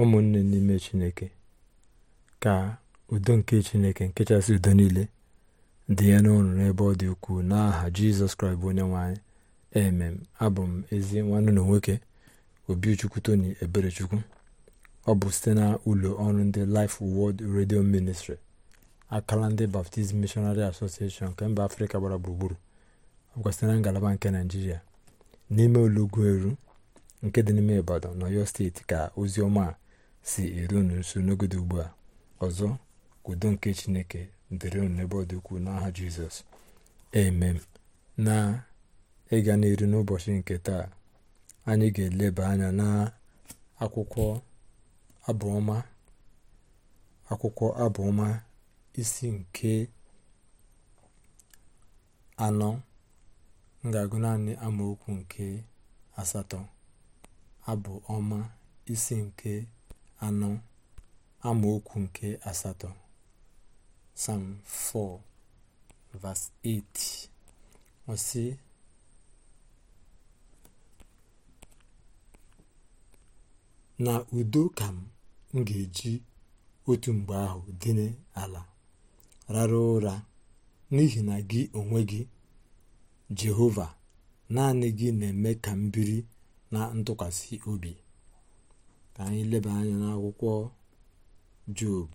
ụmụnne n'ime chineke ka udo nke chineke nkechasị udo niile dị ya n'ọrụ n'ebe ọ dị ukwuu n'aha jizọs kraịst bụ onye nwanyị emem abụ m ezi nwanne na nwoke obichukwu tony eberechukwu ọ bụ site na ụlọ ọrụ ndị Life Word redio ministri akala ndị Baptist mishonari Association nke mba afrịka gbara gburugburu ọkwa site na ngalaba nke naijiria n'ime olugbu eru nke dị n'ime ibadan na ọyọ steeti ka ozi ọma a si eru unu nso n'ogodo ugbu a ọzọ kwudo nke chineke dịrị unu n'ebe ọ dị n'aha jizọs emem na ịga n'iru n'ụbọchị nke taa anyị ga-eleba anya na akwụkwọ abụọma akwụkwọ abụọma isi nke anọ m ga-agụ naanị amaokwu nke asatọ abụ ọma isi nke anọ amaokwu nke asatọ sam 4 verse 8 na udo ka m ga-eji otu mgbe ahụ dịnye ala rara ụra n'ihi na gị onwe gị Jehova naanị gị na-eme ka m biri na ntụkwasị obi ka anyị leba anya n'akwụkwọ job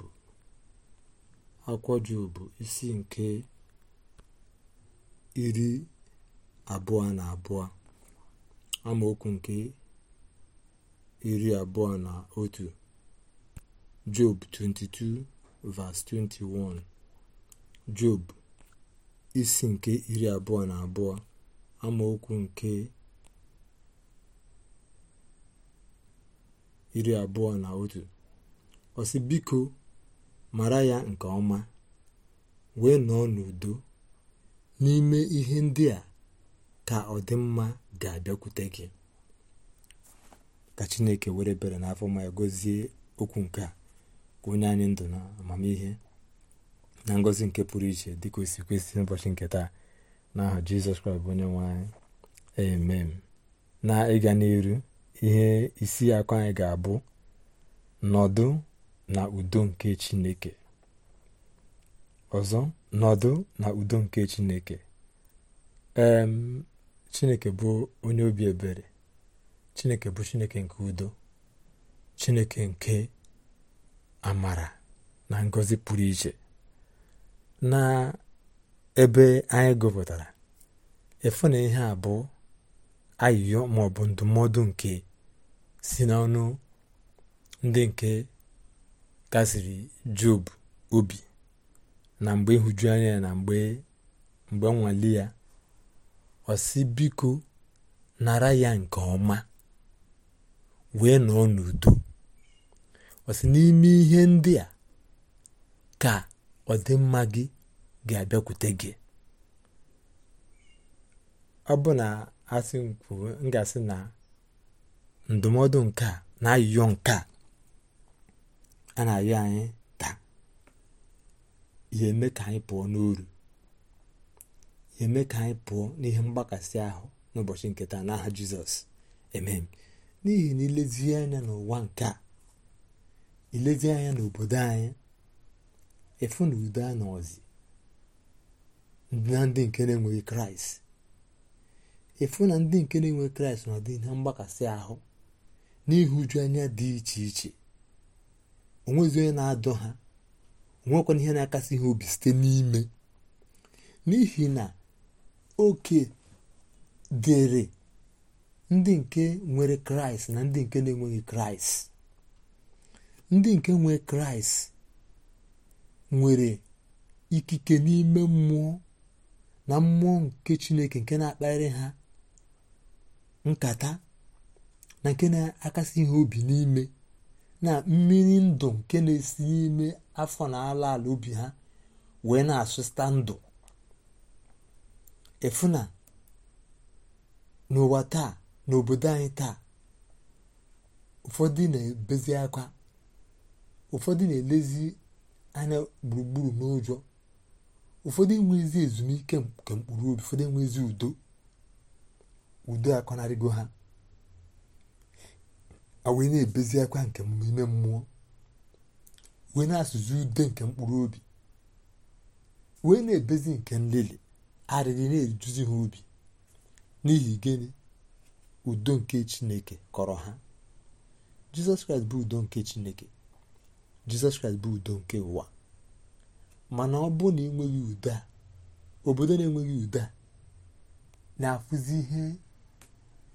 akwụkwọ jobu isi nke iri abụọ na abụọ amaokwu nke iri abụọ na otu job 22 verse 21 job isi nke iri abụọ na abụọ amaokwu nke iri abụọ na otu osi biko mara ya nke ọma wee nọọ n'udo n'ime ihe ndị a ka ọdịmma ga-abịakwute gị ka chineke were bere n'afọ ma ya okwu nke a ka onye anyị ndụ na amamihe na ngozi nke pụrụ iche dịka osi si kwesị nke taa n'aha jizọs kraịst onye nwe anyị amen na ịga n'iru ihe isi akụ anyị ga-abụ nọdụ na udo nke chineke ọzọ nọdụ na udo nke chineke emm chineke bụ onye obi ebere chineke bụ chineke nke udo chineke nke amara na ngozi pụrụ iche na ebe anyị gụpụtara ịfụ na ihe abụọ ayịyọ maọbụ ndụmọdụ nke si n'ọnụ ndị nke kasiri job obi na mgbe ịhụju anya na mgbe nwale ya ọ biko nara ya nke ọma wee nọọ n'udo ọ sị n'ime ihe ndị a ka ọdịmma gị ga-abịakwute gị ọ bụ na asị m kwuo na ndụmọdụ nke a na ayụyọ nke a a na-ayọ anyị taa ya eme ka anyị pụọ n'uru ya eme ka anyị pụọ n'ihe mgbakasị ahụ n'ụbọchị nke taa n'aha jizọs emem n'ihi na ilezie anya n'ụwa nke a ilezie anya n'obodo anyị efu na udo anọzi na ndị nke na-enweghị kraịst efu na ndị nke na-enwe kraịst na ha ihe mgbakasị ahụ n'ihụju anya dị iche iche onwezi onye na-adọ ha onwekwana ihe na-akasị ihe obi site n'ime n'ihi na oke dịrị ndị nke nwere kraịst na ndị nke na-enweghị kraịst ndị nke nwere kraịst nwere ikike n'ime mmụọ na mmụọ nke chineke nke na-akparị ha nkata na nke na-akasị ihe obi n'ime na mmiri ndụ nke na-esi n'ime afọ na ala ala obi ha wee na-asụsịta ndụ efuna n'ụwa taa n'obodo anyị taa ụfọdụ na-ebezi akwa ụfọdụ na-elezi anya gburugburu n'ụjọ ụfọdụ enwezi ezumike nke mkpụrụ obi ụfọdụ enwezi udo udo akọnarịgo ha wee na-ebezi akwa nke ime mmụọ wee na-asụzi ude nke mkpụrụ obi wee na-ebezi nke nlele arịrị na-eduzi ha obi n'ihi gịnị udo nke chineke kọrọ ha jizọs kraịst bụ udo nke chineke jizọs kraịst bụ udo nke ụwa mana ọ bụ na enweghị udo a obodo na-enweghị udo a na-afụzi ihe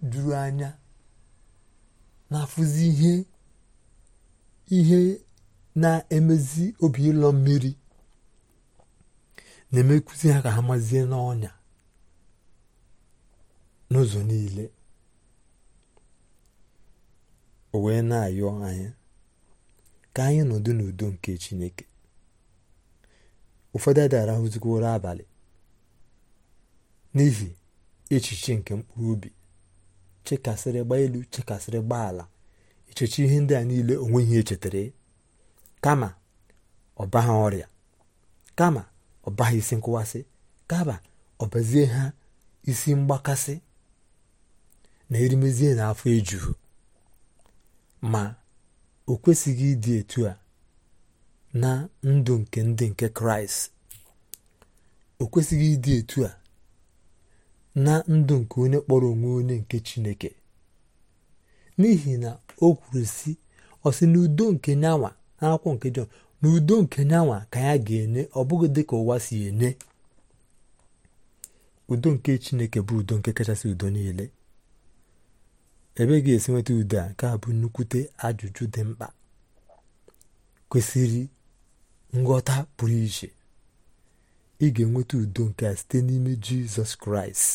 juru anya na-afụzi ihe na-emezi obi ịlọ mmiri na-emekụzi ha ka ha mazie n'ọnya n'ụzọ niile o wee na-ayọ anyị ka anyị nọdụ n'udo nke Chineke ụfọdụ adị abalị n'ihi echiche nke mkpụrụ obi chekasịrị gba elu chekasịrị gba ala echechi ihe ndị a niile ihe echetara e. kama ọbaha ọrịa kama ọbaha isi nkụwasị kama ọbazie ha isi mgbakasị na erimezie na afọ ejuhu ma o kwesịghị ịdị etu a na ndụ nke ndị nke kraịst o kwesịghị ịdị etu a na ndụ nke onye kpọrọ onwe onye nke chineke n'ihi na o kwuru si ọsị n'udo nke nyanwa Akwụkwọ nke Jọn n'udo nke nyanwa ka ya ga-enye ọ bụghị dị ka ụwa si enye udo nke chineke bụ udo nke kachasị udo niile ebe ga-esi nweta udo a nke a bụ nnukwute ajụjụ dị mkpa kwesịrị nghọta pụrụ iche ị ga-enweta udo nke a site n'ime jizọs kraịst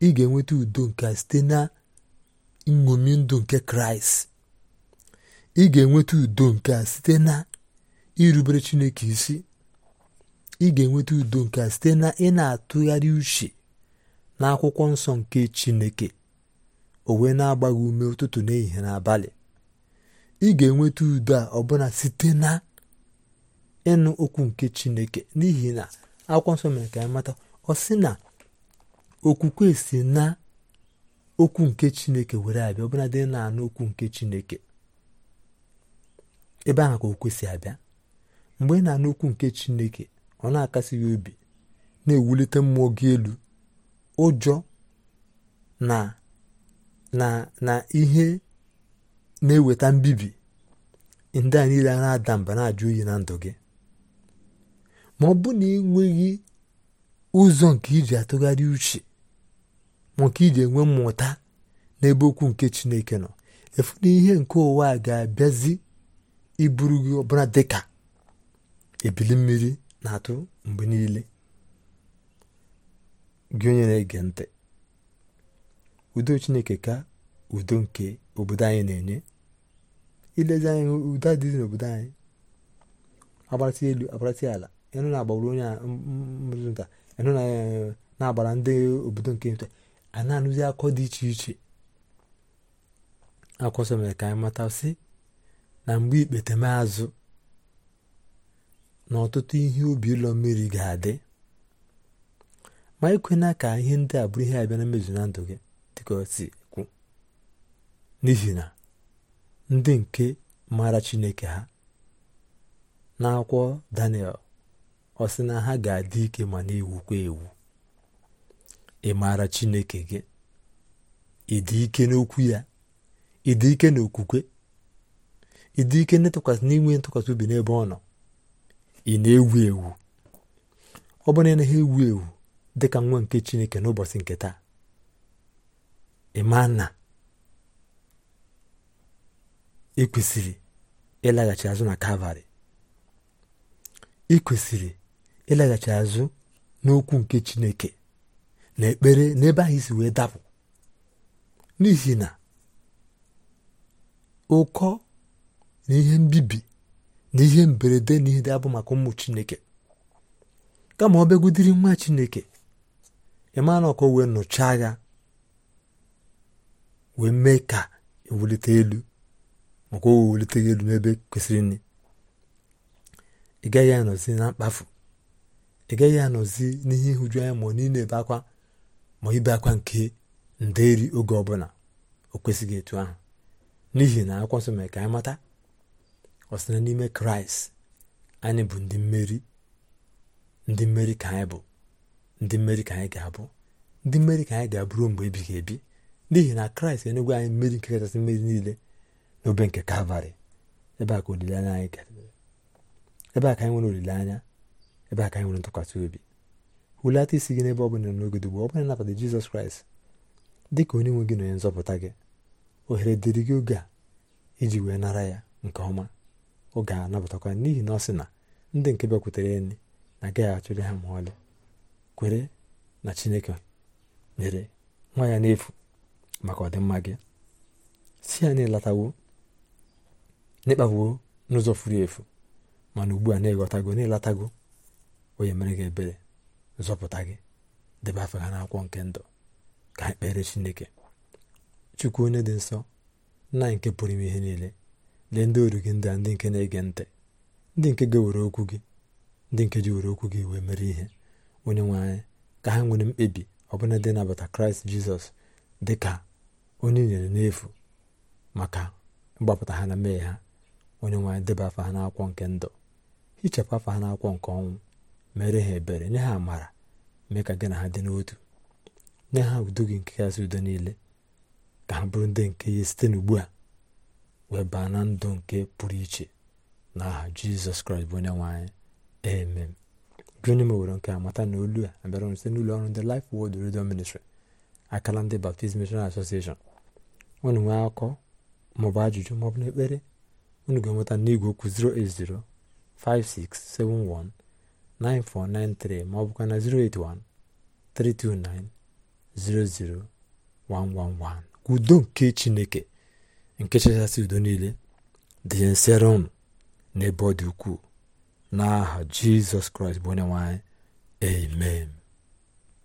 ị ga-enweta udo nke a site na nṅomi ndụ nke kraịst ị ga-enweta udo nke a site na irubere chineke isi ị ga-enweta udo nke a site na ị na-atụgharị uche na akwụkwọ nsọ nke chineke o wee na-agba ume ụtụtụ n'ehihie abalị. ị ga-enweta udo a ọbụna site na ịnụ okwu nke chineke n'ihi na akwụkwọ nsọ mere ka anyị mata ọ sị na okwukwe si na okwu nke chineke were abịa ọbụla dị na-anụ okwu nke chineke ebe ahụ ka okwu si abịa mgbe ị na-anụ okwu nke chineke ọ na-akasị gị obi na-ewulite mmụọ gị elu ụjọ na na na ihe na-eweta mbibi ndị a niile a na-ada mba na-ajụ oyi na ndụ gị ma ọ bụ na ị nweghị ụzọ nke iji atụgharị uche ma ka iji enwe mmụta n'ebe okwu nke Chineke nọ efu na ihe nke ụwa a ga-abịazi iburu gị ọbụla dịka ebili mmiri na-atụ mgbe niile gị onye na-ege ntị udo Chineke ka udo nke obodo anyị na-enye ilezi udo dị n'obodo anyị agbatị elu agbatị ala ịnụ na-agbara onye a ịnụ na-agbara ndị obodo nke nta a na-anụzi akọ dị iche iche akwọsọ mere ka anyị mata sị na mgbe ikpeteme azụ na ọtụtụ ihe ubi ụlọ mmiri ga-adị ma ikwena ka ihe ndị abụrụ bụrụ ihe abịa na mmezu na ndụ gị dịka si n'ihi na ndị nke maara chineke ha n'akwụkwọ daniel ọ sị na ha ga-adị ike ma na-ewukwa ewu ị maara chineke gị ịdị ike n'okwu ya ịdị ike n'okwukwe ịdị ike n'ịtụkwasị n'inwe ntụkwasị obi n'ebe ọ nọ ị na-ewu ewu ọ bụrụ na ha ewu ewu dị ka nwa nke chineke n'ụbọchị nke taa ekwesịrị ịlaghachi azụ na kalvarị ị kwesịrị ịlaghachi azụ n'okwu nke chineke na ekpere n'ebe anyị si wee dapụ n'ihi na ụkọ na ihe mbibi na ihe mberede na ihe dị abụ maka ụmụ chineke kama ọ bịagudiri nwa chineke ịma na ọkọ wee nụchaa ya wee mee ka ewulite elu maka o wewulite elu n'ebe kwesịrị nri ị gaghị anọzi na mkpafu ị gaghị anọzi n'ihe ihuju anya ma ọ niile ebe akwa ma ibe akwa nke nderi oge ọbụla o kwesịghị etu ahụ n'ihi na akwụkwọ nsọ mere ka anyị mata ọ sị na n'ime kraịst anyị bụ ndị mmeri ndị mmeri ka anyị bụ ndị mmeri ka anyị ga-abụ ndị mmeri ka anyị ga-abụrụ mgbe ebighị ebi n'ihi na kraịst enyegwe anyị mmeri nke kachasị mmeri niile n'obe nke kalvarị ebe a ka olileanya anyị ebe a ka anyị nwere olileanya ebe a ka anyị nwere ntụkwasị obi hulata isi gị n'ebe ọ bụla n'oge ugbu ọ bụla nabata jizọs kraịst dị ka onye nwe gị na onye nzọpụta gị ohere dịrị gị oge a iji wee nara ya nke ọma oge a nabatakwa n'ihi na ọ sị na ndị nke bịakwutere enyi na agaghị achụrị ha ma ọlị kwere na chineke nyere nwa ya n'efu maka ọdịmma gị si ya na-elatawo n'ịkpagbuo n'ụzọ furu efu mana ugbu a na-eghọtago na onye mere gị ebere zọpụta gị debe afọ ha n'akwụkwọ nke ndụ ka ha kpere chineke chukwu onye dị nsọ nna nke pụrụ ime ihe niile lee ndị oru gị ndị a ndị nke na-ege ntị ndị nke ga-ewere okwu gị ndị nke ji were okwu gị wee mere ihe onye nwe anyị ka ha nwere mkpebi ọ ọbụla dị nabata kraịst jizọs dị ka onye nyere n'efu maka mgbapụta ha na mmehie ha onye nwe anyị debe afọ ha n'akwụkwọ nke ndụ hichapụ afọ ha n'akwụkwọ nke ọnwụ mere ha ebere nye ha amara mee ka gị na ha dị n'otu nye ha udo gị nke kasị udo niile ka ha bụrụ ndị nke ya site n'ugbu a wee baa na ndụ nke pụrụ iche na aha jizọs kraịst bụ onye nwanyị anyị amen gị onye mewere nke amata na olu a abịara site n'ụlọ ọrụ ndị Life wod Radio Ministry akala ndị Baptist Missionary Association unu nwee akọ maọbụ ajụjụ maọbụ na ekpere unu ga-enweta n'igwe okwu 0805671 9493 ma ọ bụkwa na 081 329 00111 udo nke chineke nke chachasị udo niile dị nsere ụnụ n'ebe ọ dị ukwuu n'aha jizọs kraịst bụ onye nwanyị amen